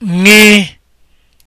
ṅị